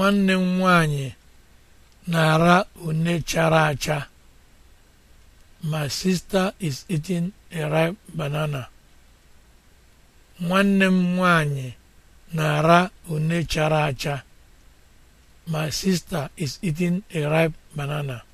nwanne m nwanyị na-ara une chara acha my sister is eating a chara acha my sister is eating a ripe banana